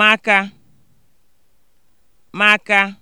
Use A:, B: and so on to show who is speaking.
A: maka maka